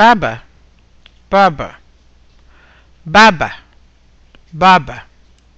baba baba baba baba